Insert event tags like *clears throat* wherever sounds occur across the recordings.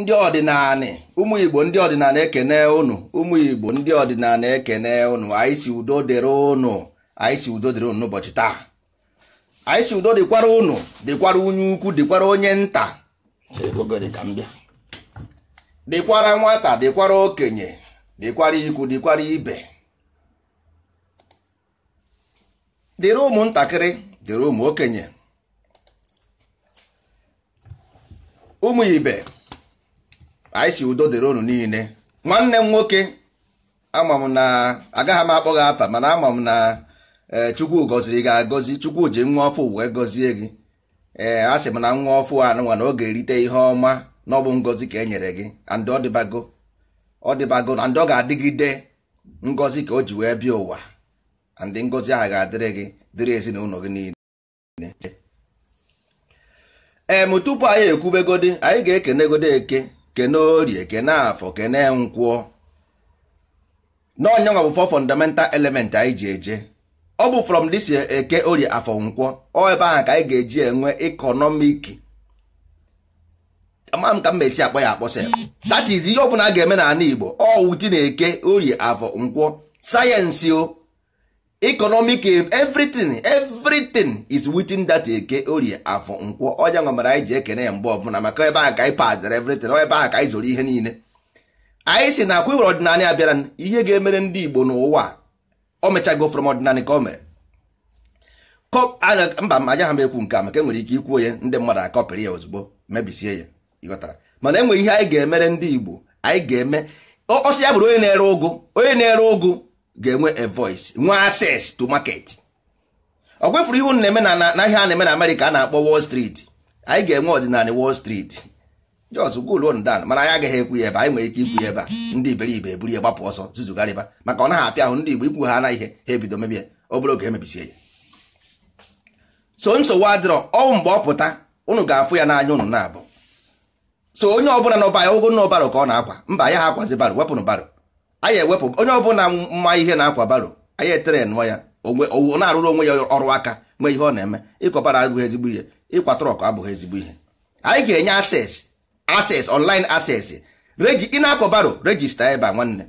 ndị ọdịnala ụmụ igbo ndị ọdịnala ekene ụnụ ụmụ igbo ndị ọdịnala ekene ụnụ anyị si udo dịrị ụnụ anyị si udo dịrị ụnụ n'ụbọchị taa anyị si udo dịkwara ụnụ dịkwara onye ukwu dịkwara onye nta dịkwara nwata dịkwara okenye dịkwara ikwu dịkwara ibe dịrị ụmụntakịrị dịrị ụmụ okenye ụmụ ibe anyị si udo dịrị unu niile nwanne m nwoke ama m na agaghị m akpọ gị afa mana ama m na e, chukwu gọziri gị agọzi chukwu ji nwa ọfụ wee gọzie gị ee a sị m na nwa ọfụ nwa na ọ ga-erite ihe ọma na ọ bụ ngọzi ka e nyere gị and ọ dịbago ọ dịbago na ndị ọ ga-adịgide ngọzi ka o ji wee bịa ụwa and ngọzi ahụ ga-adịrị gị dịrị ezinụlọ gị niile ee m tupu anyị ekwubegodi anyị ga-ekenegodi eke kene orie kene afọ kene nkwụọ n'ọnyanwa bụ fọ fundamental element anyị ji eje ọ bụ from this eke orie afọ nkwọ ọ ebe ahụ ka anyị ga-eji enwe economic ama m ka m esi akpọ ya akpọsa that is ihe ọ bụla a ga-eme n'ala Igbo ọ wuti na eke orie afọ nkwọ sayensị o economic eh, everything everything is within that eke eh, orie afọ nkwọ ọnya nwa anyị ji ekene ya mgbe ọbụla maka ebe ahụ ka anyị padere everything ebe ahụ ka anyị zoro ihe niile anyị si na akwa iwere ọdịnala ya bịara ihe ga-emere ndị Igbo n'ụwa o mechago from ọdịnala ka o mere mba m agaghị m ekwu nke a maka enwere ike ikwuo ya ndị mmadụ akọpịrị ya ozugbo mebisie ya ịghọtara mana enwere ihe anyị ga-emere ndị Igbo anyị ga-eme ọsọ ya bụrụ onye na-ere ụgụ onye na-ere ụgụ ga-enwe a voice nwee access to market ọ gwefuru ihu na-eme na ahịa a na-eme na Amerịka a na-akpọ Wall Street anyị ga-enwe ọdịnala Wall Street jos gol dan mana anyị agaghị ekwu ya ebe anyị nwere ike ikwu ya ebe a ndị iberibe eburu ya gbapụ ọsọ zuzugharịba maka ọ naghị afịa ahụ ndị Igbo ikwu ha na ihe ha ebido mebie obere oge emebisie ya so nsogbu adịrọ ọnwụ mgbe ọ pụta unu ga-afụ ya n'anya unu na-abụ so onye ọbụla n'ọba ya ogo n'ọbarụ ka ọ na-akwa mba ya ha akwazi baro wepụnụ baro anyị ewepụ onye ọbụla mma ihe na-akwa baro anyị etere nụọ ya na-arụrụ onwe ya ọrụ aka nwee ihe ọ na-eme ịkọbara abụghị ezigbo ihe ịkwa trọk abụghị ezigbo ihe anyị ga-enye ases ases online ases reji ị na-akọ baro rejista ebe a nwanne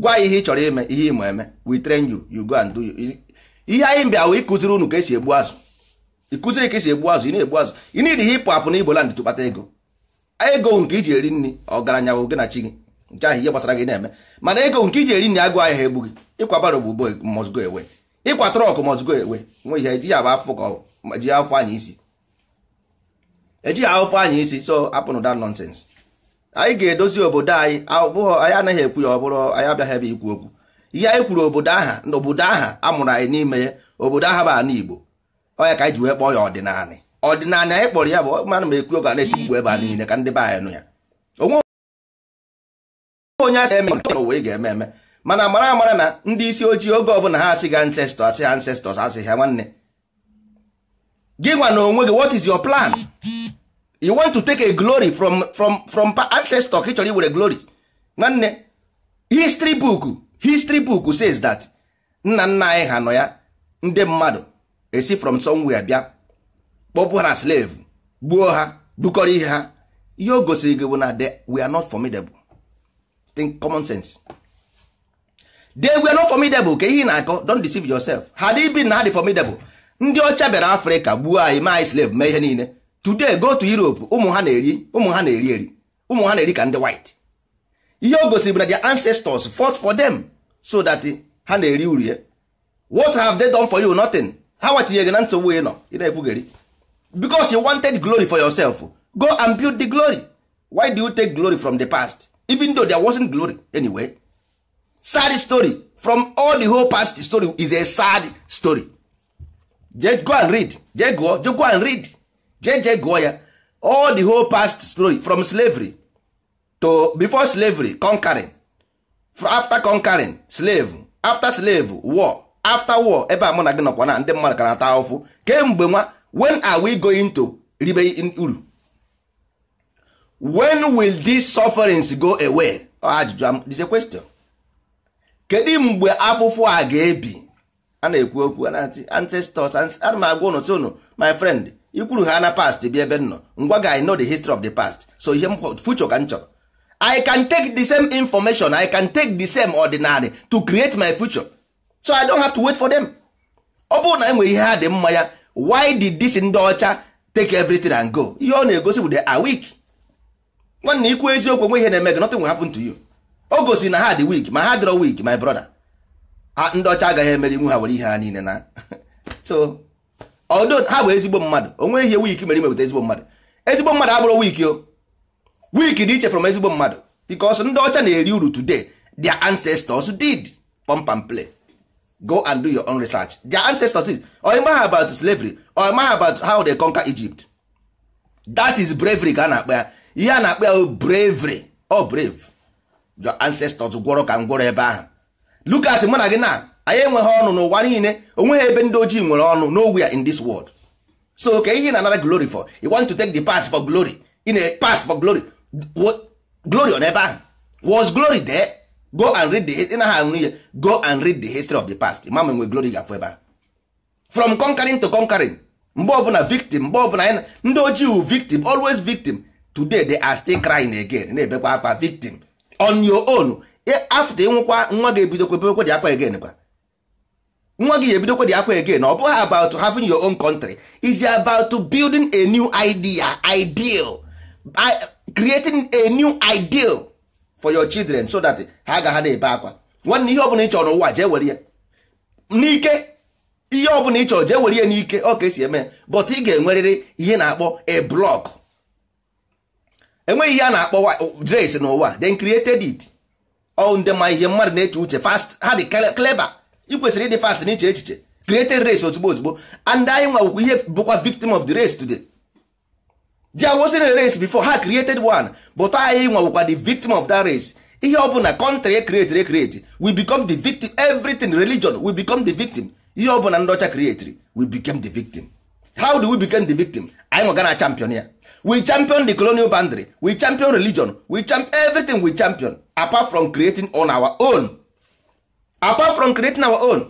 gwa ihe ị chọrọ ime ihe ị eme we train you you go and do ihe anyị bịa wee ịkụziri unu ka esi egbu azụ ịkụziri ka esi egbu azụ ị na-egbu azụ ị na-iri ihe ịpụ apụ na igboland tụkpata ego ego nke iji eri nri ọgaranya wụ gị na chi gị nke ahụ ihe gbasara gị na-eme mana ego nke iji eri nri agụ ahịa ha egbu gị ịkwa baro bụ ugbo must go ịkwa trọk must go nwe ihe ejighị agba afọ ka ji anyị isi anyị isi so apụnụ that nonsense anyị ga-edozi obodo anyị abụghị anyị anaghị ekwu ya ọ bụrụ anyị abịaghị ebe ikwu okwu ihe anyị kwuru obodo aha na obodo aha amụrụ anyị n'ime ya obodo aha bụ ana Igbo ọya ka anyị ji wee kpọọ ya ọdịnala ọdịnala anyị kpọrọ ya bụ mana m ekwu oge a na-eti mkpu ebe a niile ka ndị be anyị nụ ya onye asị eme nke ị ga-eme eme mana mara amara na ndị isi ojii oge ọbụla ha asị ga asị ha asị ha nwanne gị gwa na onwe gị what is your plan you want to take a glory from from from ancestor Actually, ị chọrọ iwere glory nwanne history book history book says that nna nna anyị ha nọ ya ndị mmadụ esi from somewhere bịa kpọpụ ha slave gbuo ha bukọrọ ihe ha ihe o gosiri gị bụ na we are not formidable think common sense they were not formidable ka ihe na-akọ deceive yourself had he been na the formidable ndị ọcha bịara afrịka gbuo anyị ma anyị slave mee ihe niile today go to europe ụmụ ha na-eri ụmụ ha na-eri eri ụmụ ha na-eri ka ndị white ihe o gosiri bụ na their ancestors fought for them so that ha na-eri uru ya eh? what have they done for you nothing ha watinye gị na nsogbu ị nọ ị na-ekwugheri because you wanted glory for yourself go and build the glory why do you take glory from the past even though there wasn't glory anyway sad story from all the whole past story is a sad story just go and read just go, just go and read just, just go ya all the whole past story from slavery to before slavery conquering after conquering slave after slave war after war ebe a mụ na gị nọkwa na ndị mmadụ kana ata ahụfụ kemgbe nwa when are we going to ribe uru when will these sufferings go away ajụjụ am. Um, is a question kedu mgbe afụfụ a ga-ebi a na-ekwu okwu ancestors ana m agwa ụnụ tụnụ my friend ikwuru ha na past bi ebe nnọ ngwa ga I know the history of the past so ihe m future ka m chọrọ I can take the same information I can take the same ordinary to create my future so I don't have to wait for them ọ bụrụ na e ihe ha dị mma ya why did this ndị ọcha take everything and go ihe ọ na-egosi bụ they are weak nwanne ikwu eziokwu onwe ihe na-eme gị nothing will happen to you o gosi na ha dị weak ma ha dịrọ weak my brother ndị ọcha agaghị emeri nwe ha were ihe ha niile na *laughs* so although ha bụ ezigbo mmadụ onwe ihe weak mere imepụta ezigbo mmadụ ezigbo mmadụ abụrụ weak o weak dị iche from ezigbo mmadụ because ndị ọcha na-eri uru today their ancestors did pump and play go and do your own research their ancestors did oimaha about slavery oimaha about how they conquer Egypt that is bravery ka na-akpa ya ihe a na-akpọ ya bravery ọ brave your ancestors gwọrọ ka ngwọrọ ebe ahụ look at mụ na gị na anyị enweghị ọnụ n'ụwa niile onweghị ebe ndị ojii nwere ọnụ nowhere in this world so ka ihe na anara glory for you want to take the past for glory in a past for glory glory on ebe ahụ was glory there go and read the na how ihe go and read the history of the past mama nwe glory gafụ ebe ahụ from conquering to conquering mgbe ọbụla victim mgbe ọbụla ndị ojii wu victim always victim today they are still crying again na-ebekwa akwa victim on your own after nwekwa nwa gị ebidokwa dị akwa again kwa nwa gị ebidokwa dị akwa again ọ bụghị about having your own country is about building a new idea ideal creating a new ideal for your children so that ha ha na-ebe akwa nwanne ihe ọbụla ị chọrọ n'ụwa jee were ya n'ike ihe ọbụla ị chọrọ jee were ya n'ike ọ ka esi eme but ị ga-enwerịrị ihe na-akpọ a block enweghị ihe a na-akpọ grace n'ụwa then created it ọ ma ihe mmadụ na-eche uche fast ha dị clever ị kwesịrị ịdị fast n'iche echiche created race ozugbo ozugbo and anyị nwa ihe bụkwa victim of the race today di awosi na race before ha created one but anyị nwa the victim of that race ihe ọ bụla country e created e create we become the victim everything religion we become the victim ihe ọ bụla ndị ọcha created we became the victim how do we become the victim anyị nwa gana champion ya we champion the colonial boundary we champion religion we champion everything we champion apart from creating on our own apart from creating our own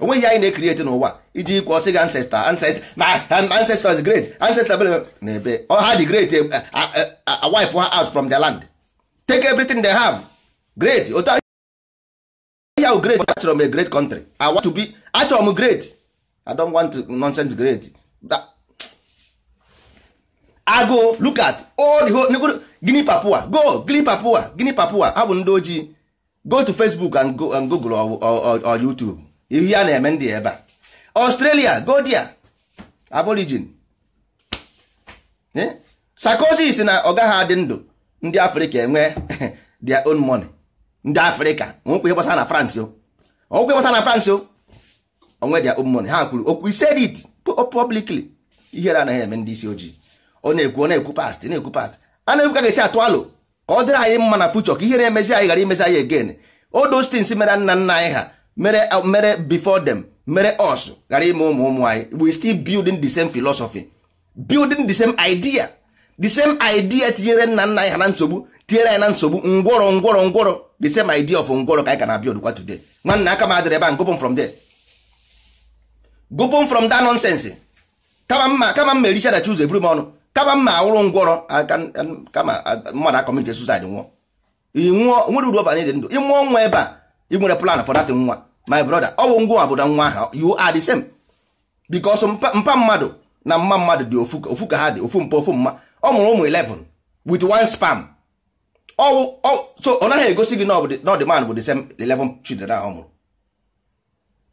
onweghị anyị na creating n'ụwa iji ikwu ọsị gị ancestor ancestor my ancestor is great ancestor na ebe ha dị great e, wipe her out from the land take everything they have great otu ahụ great achọrọ m a great country i want to be achọrọ m great i don't want nonsense great that, agụụ look at all the whole gini papua go gini papua gini papua ha bụ ndị ojii go to facebook and google or, youtube ihe a na-eme ndị ebe a australia go there aborigin eh? sarkozy na ọ gaghị adị ndụ ndị afrịka enwe *laughs* their own money ndị afrịka nwekwa ihe gbasara na france o na france onwe their own money ha kwuru okwu ise it publicly ihere anaghị eme ndị isi ojii ọ na-ekwu ọ na-ekwu past na-ekwu past a na-ekwu ka ga atụ alụ ka ọ dịrị anyị mma na fuchọ ka ihe na-emezi anyị ghara imezi anyị again all those things mere nna nna anyị ha mere mere before dem mere us ghara ime ụmụ ụmụ anyị we still building the same philosophy building the same idea the same idea tinyere nna nna anyị ha na nsogbu tinyere anyị na nsogbu ngwọrọ ngwọrọ ngwọrọ the same idea of ngwọrọ ka anyị ka na-abịa odukwa today nwanna aka m adịrị ebe a gụpụ from there gụpụ from that nonsense kama mma kama mma ericha chi ụzọ eburu m ọnụ kaba mma awụrụ ngwọrọ kama mmadụ akọmite suicide nwụọ ịnwụọ nwere uru ọbara dị ndụ ịmụọ nwa ebe a ị nwere plan for that nwa my brother ọ bụ ngwa obodo nwa ahụ you are the same because mpa mmadụ na mma mmadụ dị ofu ka ha dị ofu mpa ofu mma ọ mụrụ ụmụ 11 with one sperm so ọ naghị egosi gị na ọ dị man bụ the same 11 children ahụ ọ mụrụ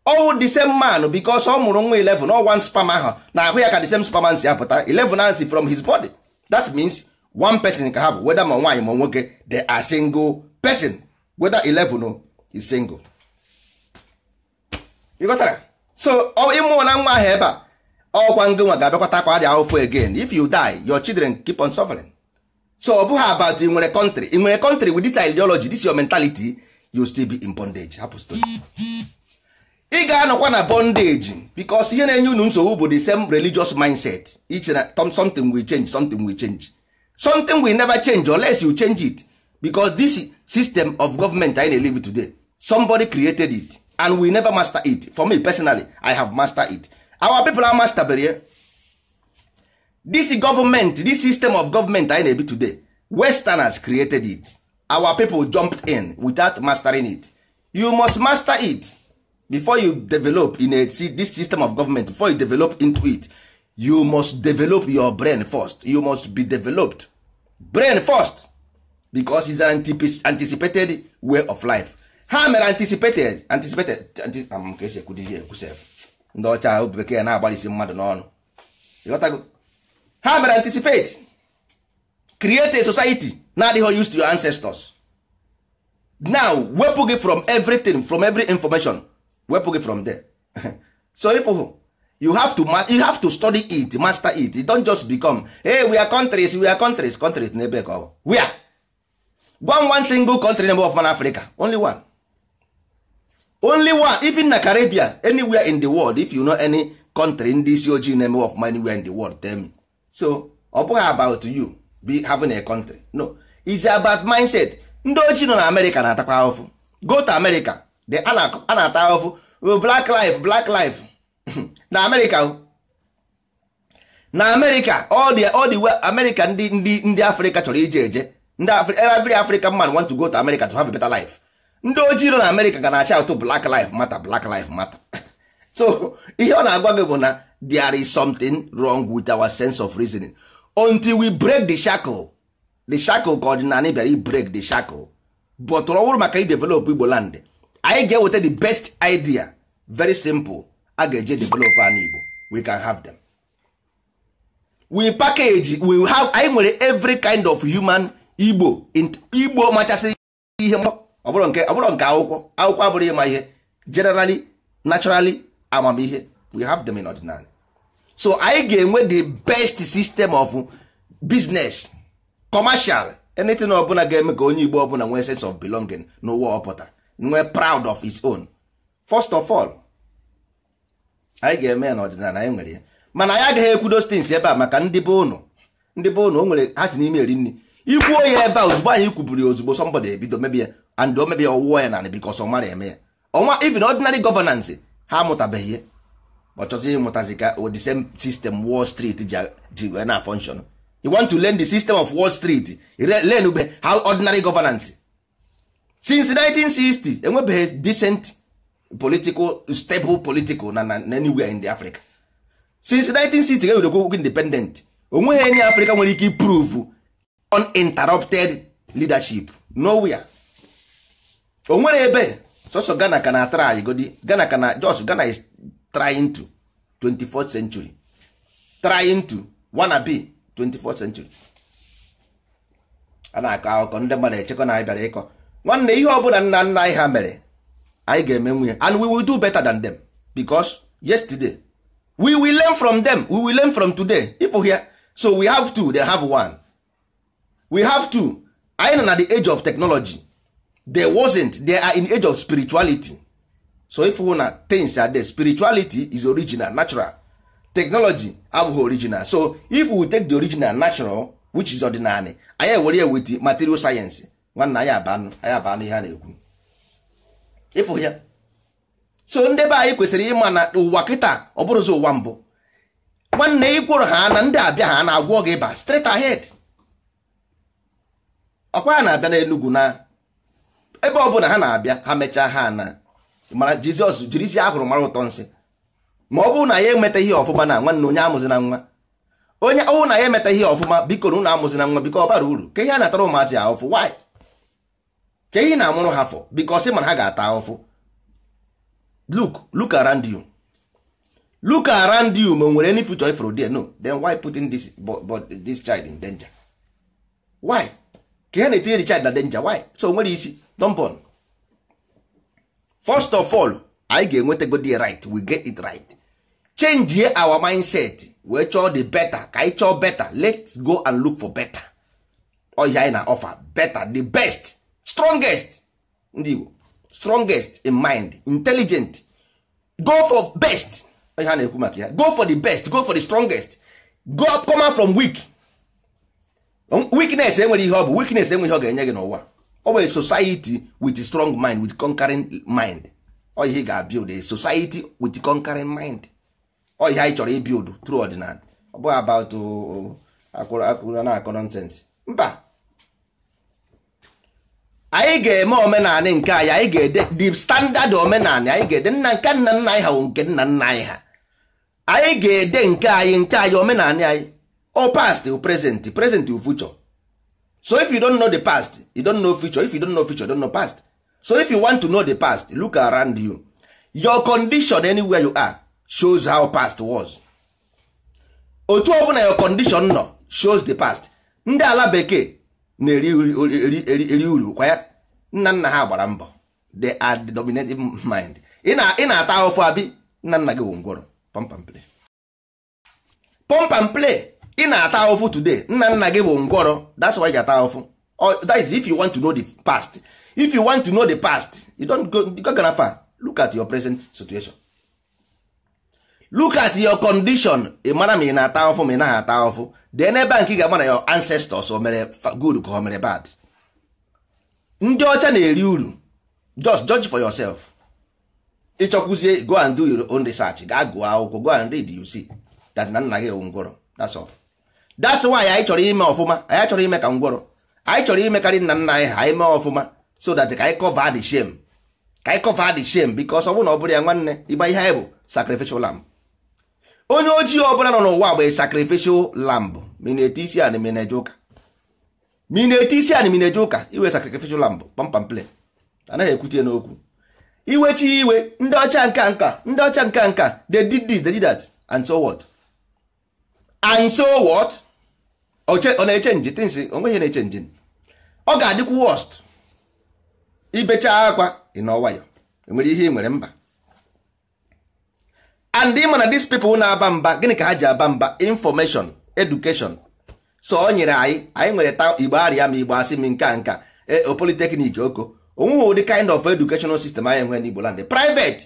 all the same man because ọ mụrụ nwa 11 ọ one sperm ahụ na ahụ ya ka the same sperm si apụta 11 si from his body that means one person ka ha bụ whether ma nwaanyị ma nwoke they are single person whether 11 is single you got that? so ịmụ na nwa ahụ ebe a ọkwa ngị nwa ga-abịakwata akwa dị ahụfụ again if you die your children keep on suffering so ọ bụghị about ị nwere country ị nwere country with this ideology this your mentality you still be in bondage hapụ ị ga-anọkwa na bondage because ihe na-enye unu nsogbu bụ the same religious mindset iche na something will change something will change something will never change unless you change it because this system of government i na na-live today somebody created it and we never master it for me personally i have mastered it our people are masterbere this government this system of government i na na-ebi today westerners created it our people jumped in without mastering it you must master it before you develop in a see, this system of government before you develop into it you must develop your brain first you must be developed brain first because it's an anticipated way of life ha mere anticipated anticipated ka esi ekwudizi ekwuse ndị ọcha obi bekee na-agbalịsi mmadụ n'ọnụ ịghọtago ha mere anticipate create a society na-adịghị used to your ancestors now wepụ gị from everything from every information wepụ gị from there *laughs* so if you have to you have to study it master it you don't just become hey we are countries we are countries countries n'ebe ka ọ we are one one single country number of man Africa only one only one even na Caribbean anywhere in the world if you know any country ndị isi ojii na-eme of man anywhere in the world tell me so ọ bụghị about you be having a country no is about mindset ndị ojii nọ na America na-atakwa go to America a na-ata black life black life *clears throat* na amerịka na amerịka all the all the way amerịka ndị ndị afrịka chọrọ ije eje ndị every african man want to go to america to have a better life ndị ojii nọ na amerịka ga na-acha ụtụ black life mata black life mata *laughs* so ihe ọ na-agwa gị bụ na there is something wrong with our sense of reasoning until we break the shackle the shackle ka ọdịnala bịara i break the shackle but ọ bụrụ maka i develop igbo land anyị ga-eweta the best idea very simple a ga-eje develop an Igbo we can have them we package we have anyị nwere every kind of human Igbo Igbo machasị ihe ọ bụrụ nke akwụkwọ akwụkwọ abụrụ ịma ihe generally naturally amamihe we have them in ordinary so anyị ga-enwe the best system of business commercial anything ọbụla ga-eme ka onye Igbo ọbụla nwee sense of belonging n'ụwa ọ nwee proud of his own first of all anyị ga-eme ya n'ọdịnala anyị nwere ya mana anyị agaghị ekwudo stins ebe a maka ndị be ụnụ ndị be ụnụ o nwere ha si n'ime eri nri ikwuo ya ebe a ozugbo anyị kwuburu ya ozugbo sọmbọdụ ebido mebi ya and o mebi ya ọwụwa ya nanị bikos ọ mara eme ya ọnwa even ordinary governance ha amụtabeghị ya ọ chọzi ịmụtazi ka the same system wall street ji wee na function you want to learn the system of wall street learn ube how ordinary governance since 1960 enwebeghị decent political stable political na na anywhere in the Africa since 1960 ga ewurekwu independent onweghị enye Africa nwere ike prove uninterrupted leadership nowhere o nwere ebe sọsọ Ghana ka na try godi Ghana ka na just Ghana is trying to 24th century trying to wanna be 24th century a na-akọ akụkọ ndị mmadụ echekwa na anyị bịara ịkọ nwanne ihe ọ bụla nna nna anyị ha mere anyị ga-eme nwunye and we will do better than them because yesterday we will learn from them we will learn from today if here so we have two they have one we have two anyị nọ na the age of technology they wasn't they are in age of spirituality so if hụ na things are there spirituality is original natural technology abụghị original so if we take the original natural which is ordinary anyị ewere ya wit material science nwanna anyị abanụ anyị abanụ ihe a na-ekwu ịfụ ya so ndị be anyị kwesịrị ịma na ụwa kịta ọ bụrụzi ụwa mbụ nwanne ịgwụrụ ha na ndị abịa ha na-agwọ gị ịba straight ahed ọkwa ha na-abịa n'enugwu na ebe ọ bụla ha na-abịa ha mechaa ha na mara jizọs jiri isi ahụrụ mara ụtọ nsị ma ọ bụrụ na ya emeta ihe ọfụma na nwanne onye na nwa onye ọwụ na ya emeta ihe ọfụma biko na ụnụ amụzina nwa biko ọ bara uru ka ihe a natara ụmụazị ọfụ waị. ka ị na-amụrụ ha fọ because mana ha ga-ata ahụfụ look look around you look around you ma nwere any future ifro there no then why putting this, but, this child in danger why ka ha na-etinye the child na danger why so nwere isi dompon first of all anyị ga the right we get it right change our mindset wee chọọ the better ka anyị chọọ better let's go and look for better ọhịa anyị na offer better the best strongest ndị Igbo strongest in mind intelligent go for best ha na-ekwu maka ya go for the best go for the strongest go up come out from weak um, weakness enwere ihe ọ bụ weakness enwere ihe ọ ga-enye gị n'ụwa society with a strong mind with conquering mind ọ ihe ga build a society with conquering mind ọ ihe anyị chọrọ build through ordinary ọ bụghị about oh, oh, akwụrụ akwụrụ na-akọ nonsense mba anyị ga-eme omenanị nke anyị anyị ga-ede the standard omenanị anyị ga-ede nna nke nna nna anyị ha nke nna nna anyị ha anyị ga-ede nke anyị nke anyị omenanị anyị o past o present present o future so if you don't know the past you don't know future if you don't know future you don't know past so if you want to know the past look around you your condition anywhere you are shows how past was otu ọbụla your condition nọ shows the past ndị ala bekee na-eri uru kwa ya nna nna ha gbara mbọ they are the dominating mind ị na-ata ahụfụ abi nna nna gị wụ ngwọrọ pump and play pump and play ị na-ata ahụfụ today nna nna gị bụ ngwọrọ that's why ị ga-ata ahụfụ that is if you want to know the past if you want to know the past you don't go, go far look at your present situation look at your condition ị mara ma ị na-ata ọfụ ma ị naghị ata ahụfụ dee n'ebe nke ị ga-ama na your ancestors o mere good ka o mere bad ndị ọcha na-eri uru just judge for yourself ịchọkwuzie go and do your own research gaa gụọ akwụkwọ go and read you see that na nna gị ewu ngwọrọ that's all that's why anyị chọrọ ime ọfụma anyị chọrọ ime ka ngwọrọ anyị chọrọ imekarị nna nna anyị ha anyị mee ọfụma so that ka anyị cover the shame ka anyị cover the shame because ọ bụrụ na ọ bụrụ ya nwanne ịgba ihe anyị bụ sacrificial lamb onye ojii ọbụla nọ n'ụwa bụ sacrificial lamb mineti isi anị mineje ụka iwe sacrificial lamb pampam play anaghị ekwute n'okwu iwe chi iwe ndị ọcha nka nka ndị ọcha nka nka they did this they did that and so what and so what ọ na-echenji tinsi onweghị na-echenji ọ ga-adịkwu worst ibecha akwa ị nọ nwayọ enwere ihe ị nwere mba and ịma na these people na-aba mba gịnị ka ha ji aba mba information education so o nyere anyị anyị nwere ta igbo arịa ma igbo asị m nka nka e, polytechnic oko onweghị ụdị kind of educational system anyị nwere n'igbo land private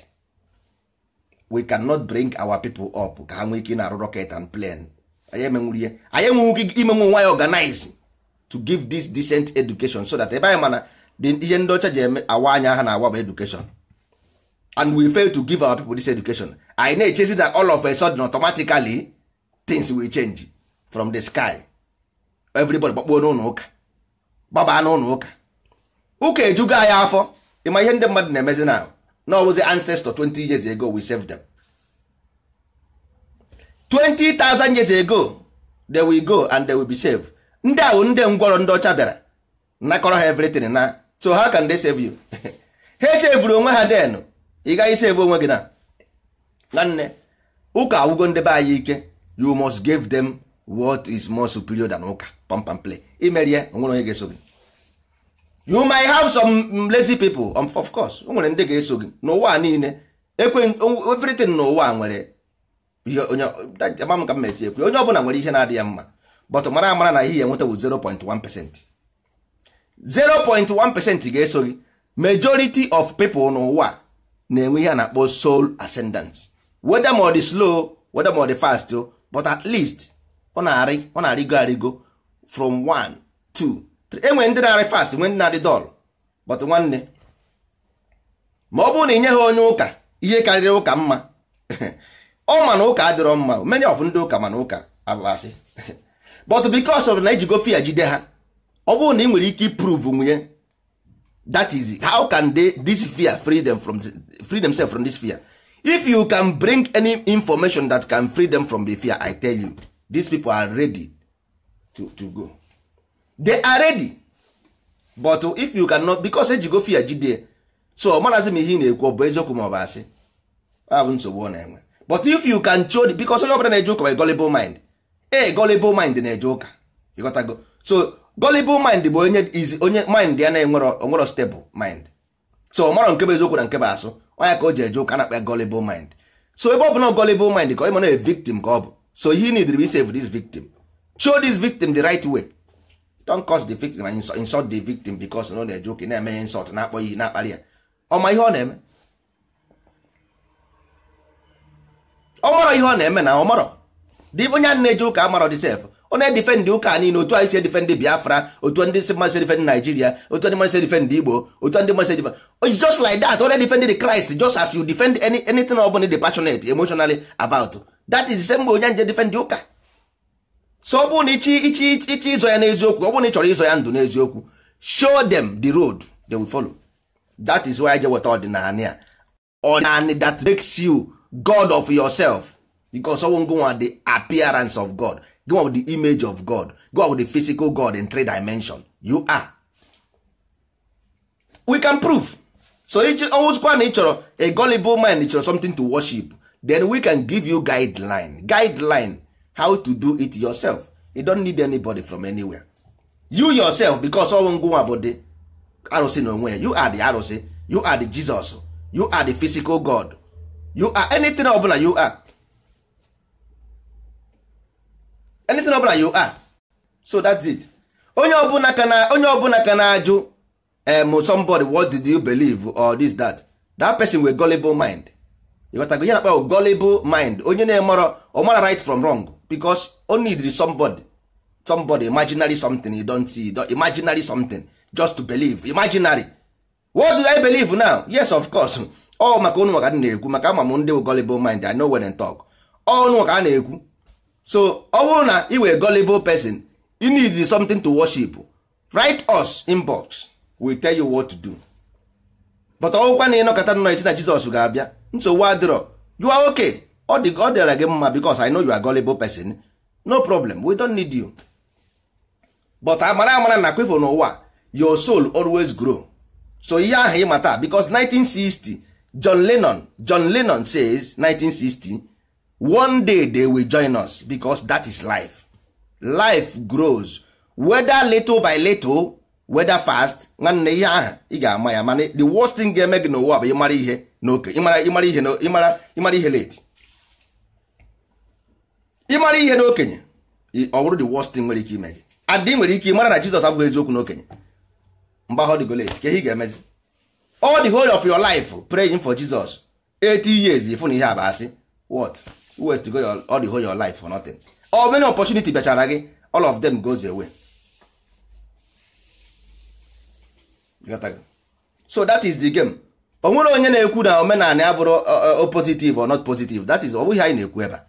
we cannot bring our people up ka ha nwee ike na-arụ rocket and plane anyị ihe anyị enweghị ike imenwe nwa ya organize to give this decent education so that ebe anyị mana ihe ndị ọcha ji eme awa anya ha na awa bụ education and we fail to give our people this education anyị na-echezi that all of a sudden automatically things will change from the sky everybody gbakpuo n'ụlọ ụka gbabaa n'ụlọ ụka ụka ejugo anyị afọ ịma ihe ndị mmadụ na-emezi na na ọbụzi ancestor 20 years ago we saved them 20,000 years ago they will go and they will be saved ndị ahụ ndị ngwọrọ ndị ọcha bịara nakọrọ ha everything na so how can they save you ha *laughs* sevuru onwe ha denu ị gaghị isi ebe onwe gị na nwanne ụka awụgo ndebe be anyị ike you must give them what is more superior than ụka pampam play imerie onwere onye ga-eso gị you may have some lazy people um, of course o nwere ndị ga-eso gị n'ụwa niile ekwe everything n'ụwa nwere onye ọbụla nwere ihe na adị ya mma but mara amara na ihe enweta bụ 0.1 0.1 ga-eso gị majority of people n'ụwa na-enwe ihe a na-akpọ soul ascendance weda ma slow weda ma ọ fast oh, but at least ọ na-arị ọ na-arịgo arịgo from 1 2 3 enwere ndị na-arị fast nwee ndị na-adị dọl but nwanne ma ọ bụrụ na ị nye ha onye ụka ihe karịrị ụka mma *laughs* ọ ma na ụka adịrọ mma many of ndị ụka mana ụka abụbasị *laughs* but because of na ejigo fear jide ha ọ bụrụ na ị nwere ike iprove nwunye that is it. how can they this fear free them from free themselves from this fear if you can bring any information that can free them from the fear i tell you these people are ready to, to go they are ready but if you cannot because eji go fear jide so marazi m ihe ị na-ekwu ọ bụ eziokwu ma ọ bụ asị abụ nsogbu ọ na-enwe but if you can show because onye ọbụla na-eje ụka by gullible mind e gullible mind na-eje ụka ịghọtago so gullible mind bụ onye izi onye mind ya na-enwero onwero stable mind so ọ mara nke bụ eziokwu na nke bụ asụ ọnya ka o ji eje ụka na-akpa ya mind so ebe ọ bụla gullible mind ka ọ ịma na victim ka ọ bụ so he need to save this victim show this victim the right way don't cause the victim and insult, insult the victim because na ọ na-eje ụka na-eme ya insult na-akpọ ya na-akparị ya ọma ihe ọ na-eme ọ marọ ihe ọ na-eme na ọ marọ dị onye a na-eje ụka amarọ dị sef ọ na-edifendị ụka niile otu anyị si edifendị biafra otu ndị si mmasị edifendị naijiria otu ndị mmasị edifendị igbo otu ndị mmasị edifendị it's just like that ọ na-edifendị the christ just as you defend any, anything ọ bụla dị passionate emotionally about that is the same onye nje defendị ụka so ọ bụrụ na ichi ichi ichi ịzọ ya n'eziokwu ọ bụrụ na ị chọrọ ịzọ ya ndụ n'eziokwu show them the road they will follow that is why I je weta ọdịnala ya ọdịnala that makes you god of yourself because ọwụ ngụnwa the appearance of god go out with the image of god go out with the physical god in three dimension you are we can prove so it's ọnwụzikwa na ị chọrọ a gullible mind chọrọ something to worship then we can give you guideline guideline how to do it yourself you don't need anybody from anywhere you yourself because ọnwụ ngụnwa bụ the arụsị na onwe you are the arụsị you are the jesus you are the physical god you are anything ọbụla you are anything ọbụla you are ah. so that's it onye ọbụla ka na onye ọbụla ka na-ajụ um, somebody what did you believe or this that that person with gullible mind ịghọtago ya nakpa gullible mind onye na-emerọ ọmara right from wrong because o needed somebody somebody imaginary something you don't see imaginary something just to believe imaginary what do I believe now yes of course *laughs* ọ maka onu maka na-ekwu maka ama ndị gullible mind I know when I talk Oh, maka a na-ekwu so ọ bụrụ na ị were gullible person you need something to worship write us in box we tell you what to do but ọgwụkwa na ịnọkọta nọ esi na Jizọs ga-abịa nsogbu adịrọ you are okay ọ dị ọ dịara gị mma because I know you are gullible person no problem we don't need you but amara amara na kwefọ n'ụwa your soul always grow so ihe ahụ ịmata because 1960 John Lennon John Lennon says 1960 one day they will join us because that is life life grows whether little by little whether fast nwanne ihe ahu ị ga-ama ya mana the worst thing ga-eme gị n'ụwa bụ ịmara ihe n'oke ịmara ihe late ịmara ihe n'okenye ọ bụrụ the worst thing nwere ike ime gị adị nwere ike ịmara na Jizọs abụghị eziokwu n'okenye mgbe ahụ dịgo late ka ihe ị ga-emezi all the whole of your life praying for Jesus 80 years ịfụ na ihe a bụ what west go your all the whole your life for nothing or many opportunity bịachara gị all of them goes away so that is the game o nwere onye na-ekwu na omenala ya bụrụ uh, uh, positive or not positive that is ọ bụghị anyị na-ekwu ebe a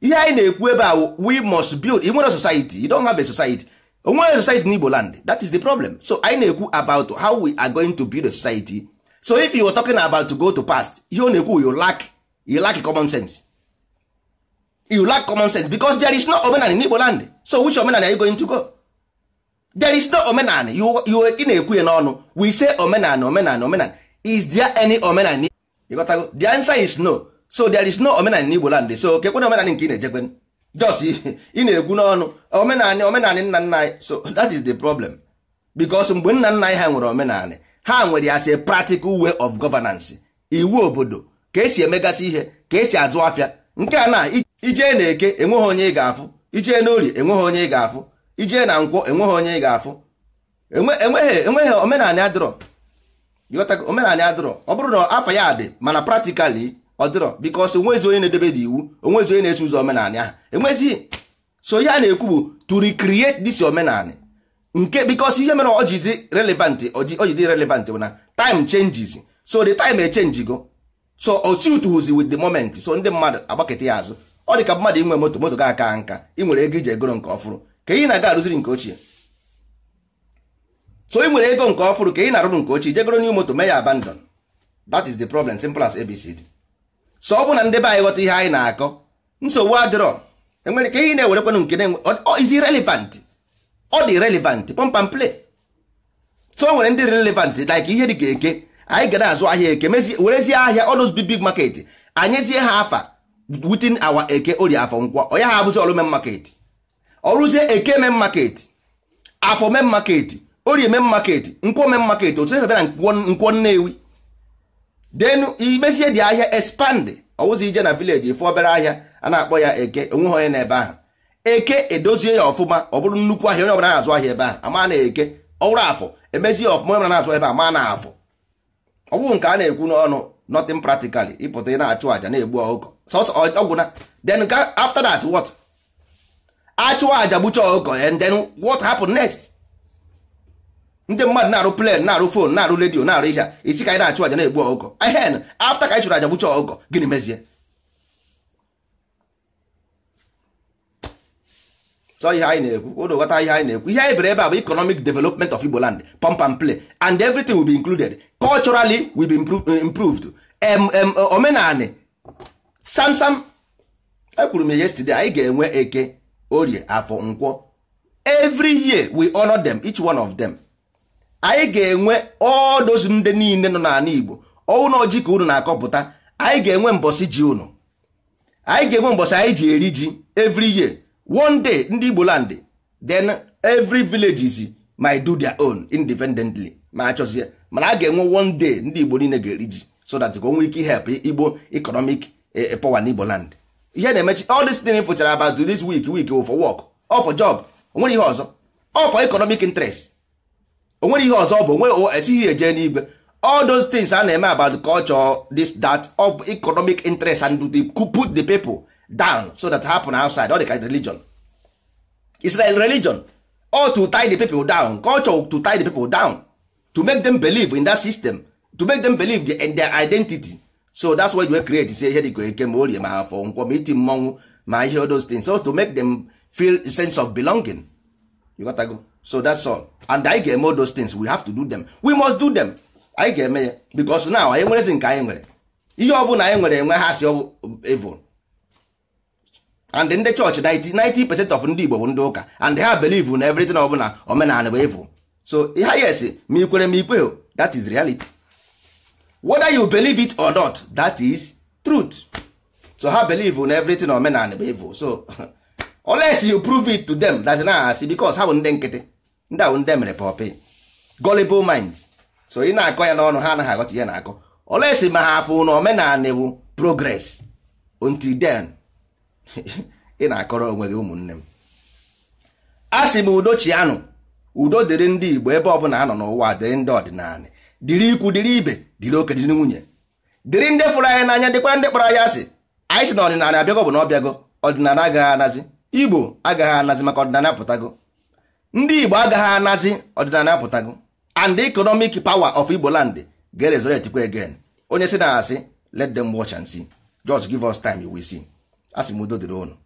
ihe anyị na-ekwu ebe a we must build i nwere society you don't have a society o nwere society n'Igbo land that is the problem so anyị na-ekwu about how we are going to build a society so if you were talking about to go to past ihe ọ na-ekwu you lack you lack common sense you lack common sense because there is no omenala in Igbo land so which omenala are you going to go there is no omenala you you ị na-ekwu ya n'ọnụ we say omenala omenala omenala is there any omenala in got to the answer is no so there is no omenala in Igbo land so kekwe na nke ị na-ejekwe just ị *laughs* na-ekwu n'ọnụ omenala omenala nna nna anyị so that is the problem because mgbe nna nna anyị ha nwere omenala ha nwere ya a practical way of governance iwu obodo ka esi emegasị ihe ka esi azụ afịa nke a na ijee na eke enweghị onye ị ga-afụ ijee na orie enweghị onye ị ga-afụ ijee na nkwọ enweghị onye ị ga-afụ enweghị omenala adịrọ omenala adịrọ ọ bụrụ na afọ ya dị mana pratikali ọ dịrọ because onwezi onye na-edebe dị iwu onwezi onye na-eso ụzọ omenala ahụ enwezighị so ihe a na-ekwu bụ to recreate dis omenala nke because ihe mere ọ ji dị relevant ọ relevant bụ na time changes so the time e go so o tutuzi with the moment so ndị mmadụ agbaketa ya azụ ọ dị ka mmadụ inwe moto moto ga aka nka ị nwere ego iji egoro nke ọfụrụ ka ị na-aga arụziri nke ochie so ị nwere ego nke ọfụrụ ka ị na-arụrụ nke ochie jegoro new moto mee ya abandon that is the problem simple as abcd so ọ bụ na ndị be anyị ghọta ihe anyị na-akọ nsogbu adịrọ enwere ka ihe na-ewerekwanụ nke na-enwe is relevant ọ dị relevant pump play so o nwere ndị relevant like ihe dị ka eke anyị gana azụ ahịa eke werezie ahịa ọnụz big big market anyezie ha afa wutin awa eke ori afọ nkwọ onye ha abụzi ọrụ men market ọrụzie eke men market afọ men market orie men market nkwọ men market otu efe bịara nkwọ nnewi denu imezie dị ahịa expand ọwụzi ije na village efu obere ahịa a na-akpọ ya eke onweghị onye ebe ahụ eke edozie ya ọfụma ọ bụrụ nnukwu ahịa onye ọbụla na-azụ ahịa ebe ahụ ama na eke ọwụrụ afọ emezie ọfụma onye ọbụla na-azụ ebe a ma na afọ ọ bụrụ nke a na-ekwu n'ọnụ nothing practically ịpụta ị na-achụ àjà na-egbu ọkụkọ ọgwụ na then after that what achụ àjà gbucha ọkụkọ and then what happen next ndị mmadụ na-arụ plan na-arụ fon na-arụ redio na-arụ ihe a isi ka anyị na-achụ àjà na-egbu ọkụkọ ehen after ka anyị chụrụ àjà gbucha ọkụkọ gịnị mezie so ihe anyị na-ekwu ụnụ ihe anyị na-ekwu ihe anyị bere ebe a bụ economic development of Igbo land pump and play and everything will be included culturally will be eh, improved eh, Sam samsam ekwuru m yesterday anyị ga-enwe eke orie afọ nkwọ every year we honor them each one of them anyị ga-enwe all ndị niile nọ n'ala Igbo ọnwụ ji ka unu na-akọpụta anyị ga-enwe mbọsị ji unu anyị ga-enwe mbọsị anyị ji eri ji every year one day ndị igbo land then every villages might do their own independently ma achọzie mana a ga-enwe one day ndị igbo niile ga-eri ji so that ka o ike help igbo economic eh, eh, power n'igbo land ihe na-emechi all this thing fụchara about this week week oh, for work or oh, for job onwere ihe ọzọ or oh, for economic interest onwere ihe ọzọ bụ nwe etighi eje n'igwe all those things a na-eme about culture this that of economic interest and to put the people down so that happen outside all the kind of religion israel religion all to tie the people down culture to tie the people down to make them believe in that system to make them believe in their identity so that's why we create say here dịka eke ma orie ma afọ nkwọ ma iti mmọnwụ ma ihe those things so to make them feel a sense of belonging you got to go so that's all and I ga ga-eme those things we have to do them we must do them I ga ga-eme ya because now anyị nwerezi nke anyị nwere ihe ọ bụla anyị nwere enwe ha si evil and ndị church, 90 percent of ndị Igbo bụ ndị ụka and ha believe na everything of omenala bụ evu so ha yes ma ikwere ma ikwe that is reality whether you believe it or not that is truth so ha believe na everything omenala bụ evu so *laughs* unless you prove it to them that na asị because ha bụ ndị nkịtị ndị ahụ ndị mere pọpị gullible minds so ị na-akọ ya n'ọnụ ha anaghị aghọta ihe na-akọ unless ma ha afụ na omenala bụ progress until then *laughs* ị na-akọrọ onwe gị ụmụnne m a sị m udochianụ udo dịrị ndị Igbo ebe ọ bụla anọ n'ụwa dịrị ndị ọdịnala dịrị ikwu dịrị ibe dịrị oke dịrị nwunye dịrị ndị fụrụ anyị n'anya dịkwara ndị kpọrọ anyị asị anyị sị na ọdịnala abịago bụ na ọ ọdịnala agaghị anazi Igbo agaghị anazi maka ọdịnala apụtago ndị Igbo agaghị anazi ọdịnala apụtago and economic power of igboland land ga-erezoretikwa again onye si na asị let them watch and see just give us time we see a sị m udo dịrị ụnụ